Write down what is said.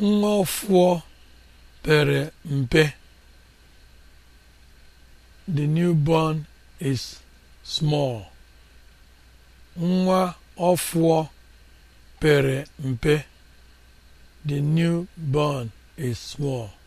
Nwafor pere mpe. The newborn is pere mpe. The newborn is small.